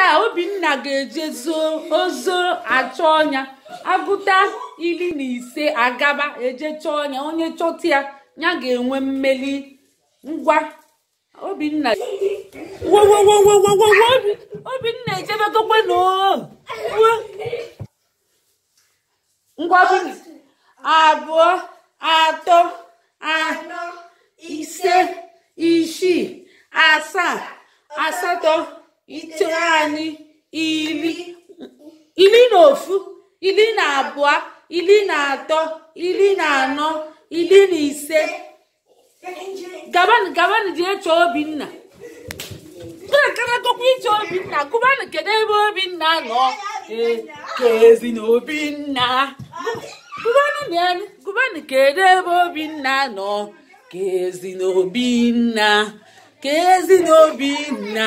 kịta obinna ga-eje ozo achọ ọnya agụta iri na ise agaba eje chọọ ọnya onye chọta ya ya ga-enwe mmeli ngwa obinna obinna ejebegokwe na ngwa abụọ atọ anọ ise isii asaa asatọ ite anyị iri iri na ofu iri na abụọ iri na atọ iri na anọ iri na ise gabanụ gabanụ dị eche obinna na-akaragokwa iche obinna gụbanụ kedu ebe obinna nọ kezi na obinna gụbanụ na kedu ebe obinna nọ kezi na obinna kezi na obinna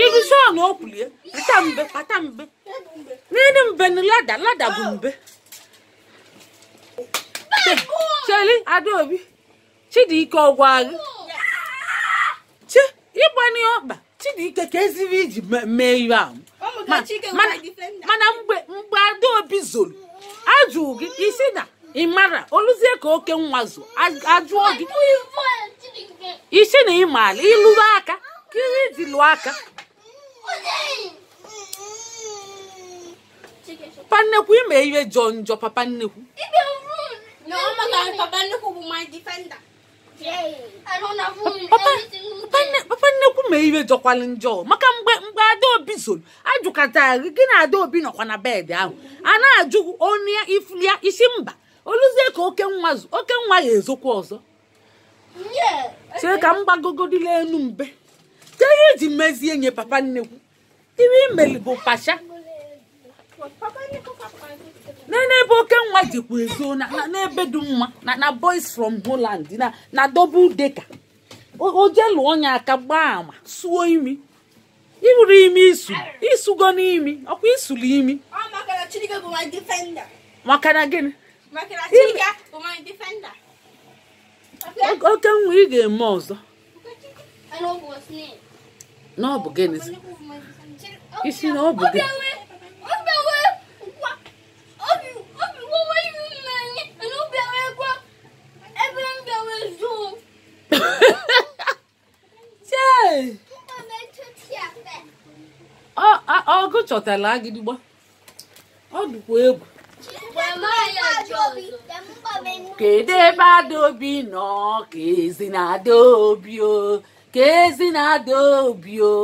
iruzie na okwulie pata mbe pata mbe nene mbe na lada lada bụ mbe cheli adaobi chidike ọgwa gị chi ịgbani ọkpa chidike ka eziri iji mee ihe ahụ mana mgbe mgbe adaobi zoro ajụ gị isi na ịmara oluzie ka oke nwa zụ ajụọ gị isi na ịmaala ịlụrụ aka kiri dị lụọ aka papa nnekwu ime ihe jọ njọ papa nnekwu papa nnekwu mee ihe jọkwalụ njọ maka mgbe mgbe adaobi zoro ajụkata gị na adaobi nọkwa na bed ahụ a na-ajụ onu ya ifu ya isi mba oluzie ka oke nwa oke nwa ya ezokwa ọzọ chee ka m gbagogodila enu mbe ka ihe mezie nye papa nnekwu ihe imeli bụ pacha n'ebe oke nwa jikwa ezo n'ebe dị mma na boys from Holland na na double decker oje lụọ onye aka gbaa ama suo imi iburu imi isu isugo n'imi ọkwa isuru imi maka na gịnị oke nwa ị ga-eme ọzọ n'ọ bụ gịnị isi na ọ bụ gịnị ọgụ chọtara agịdịgba ọ dịkwa egwu kedu ebe adaobi nọ ka ezi na adaobi o ka ezi na adaobi o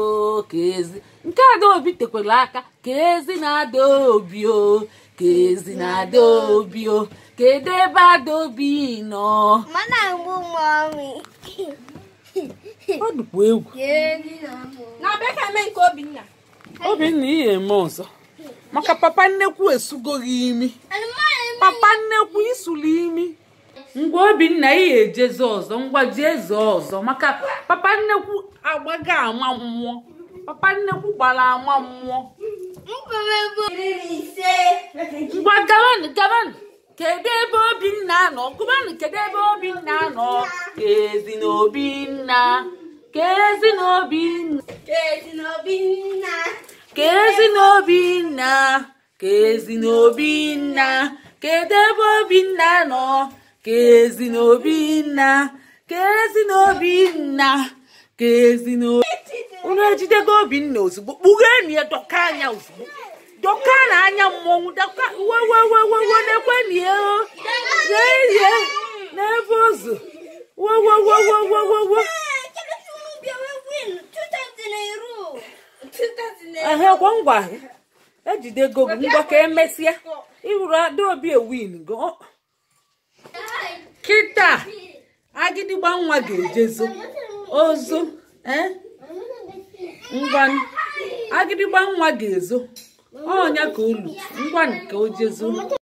ka ezi nke adaobi tekwara aka ka ezi na adaobi o ka ezi na adaobi o kedu ebe adaobi nọ mana m ọ dịkwa egwu na bekee mee nke Obinna Obinna ihe eme ọzọ maka papa nnekwu esugoghị imi papa nnekwu isuli imi ngwa Obinna ihe ejeze ọzọ ngwa jee ọzọ maka papa nnekwu agbago ama mmụọ papa nnekwu gbara ama mmụọ ngwa gabanụ gabanụ kedu ebe Obinna nọ gụbanụ kedu ebe Obinna nọ ka ezi na Obinna Kezi n'Obinna nna n'Obinna Kezi n'Obinna nna ka Kedu ebe nna nọ Kezi n'Obinna Kezi n'Obinna Kezi n'Obinna Unu ejidego nna ozugbo kpughee na ya dọka anya ozugbo dọka na anya mmọnwụ dọka wewewewewe na-ekwe na ya ngwa ejidego gị ngwa ka emesịa obi adaobi e ewin go kịta agịdịgba nwa ga-ejezo ozo e? ngwa agịdịgba nwa ga-ezo ọnya ka olu ngwa nke o jezo